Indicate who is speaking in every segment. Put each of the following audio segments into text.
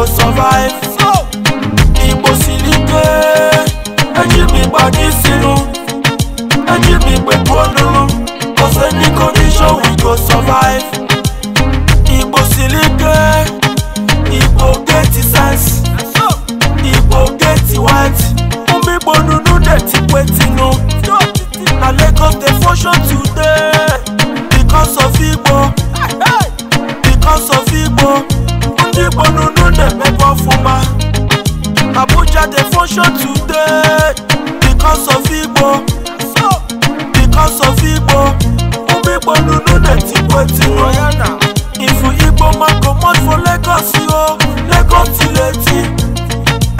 Speaker 1: go survive. Igbo silike, ẹjí mi gbàdí sínú, ẹjí mi pẹ̀lú olúlu, kò sẹ́ni condition we go survive. Emotion today because of Igbo because of Igbo who people no know that Igbo ti know if Igbo man comot for Lagos yo Lagos ti leti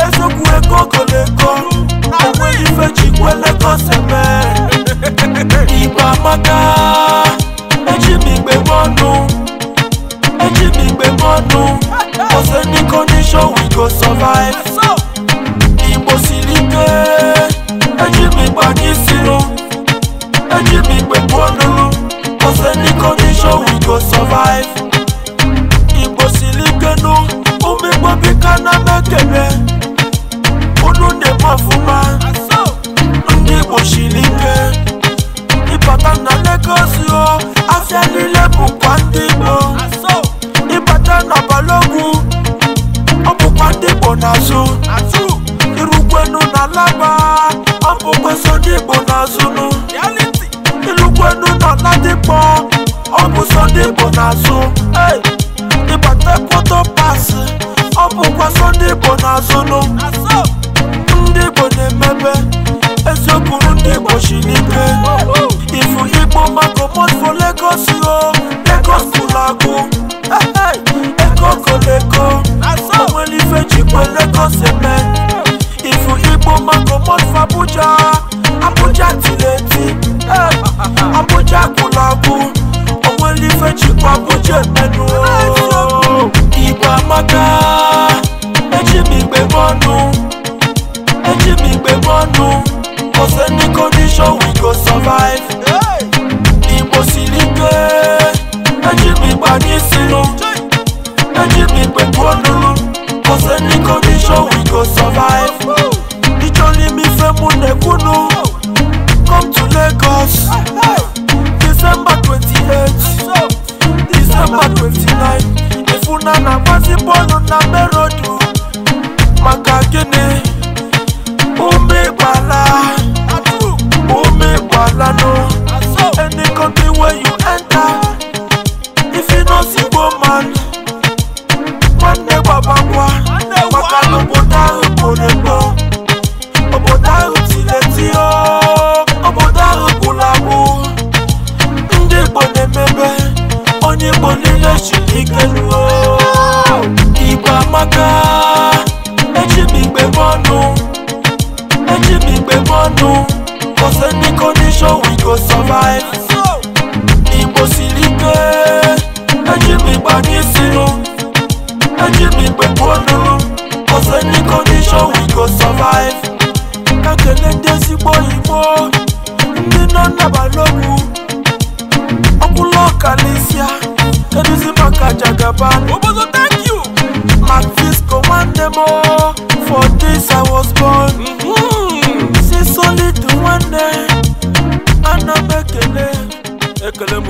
Speaker 1: ezoku ego go Lagos owe ifeji kwe Lagos man. Igba maka eji mi gbe mọnu eji mi gbe mọnu ọsẹ ní condition we go survive. jẹ́ nílé bùkún dìbò Ìbàdàn nàbàlógún ó bùkún dìbò nàṣù irúgbẹ́nu nàlágbà ó bùkún sódìbò nàṣùnù irúgbẹ́nu nàládìpọ̀ ó bùkún sódìbò nàṣù Ìbàdàn kó tó pàṣẹ ó bùkún sódìbò nàṣùnù ndìbò ní mẹ́bẹ́ eziokwu ndìbò sì ní pé oh, oh. ìfún igbó mọ́tò comot for lagos o lagos kò lagun Lagos. kò lẹ́kọ̀ọ́ ọmọ ẹlẹ́fẹ̀jì pé lagos ẹ̀mẹ́ ìfún igbó má comot for abuja abuja tìlẹ̀tì abuja kò lagun ọmọ ẹlẹ́fẹ̀jì pé abuja ẹ̀mẹ́nu o ìgbà maka ẹjí mi gbé bọ́nu ẹjí mi gbé bọ́nu kò sẹ́ni condition we go survive mo sì pé ẹjí pípa ní sínú ẹjí pípẹ́ kó dúró kò sẹ́ni condition we go survive níjọ́ ní mi fẹ́ mú nẹ̀kúnnú come to Lagos December twenty eight December twenty nine ìfúnná nàgbà sí bọ́ọ̀lù nàbẹ́rọ̀. gbagwa maka na obodo ahụ kwụrụ egbo obodo ahụ tiri eti obodo ahụ gwụrụ agwụ ndị igbo na-emebe onye igbo niile chiri ike ruo igbo amaka eji m igbe ọnụ eji m igbe ọnụ five kakele dé sípò ìgbó nínú nàbà lóru ọkùnlọ kàlísíà kẹdùsí màkà jàgàbá. obozo thank you. Marvis commande mo for this I was born. Mm -hmm. See solid one day, anabekele, ekele mo.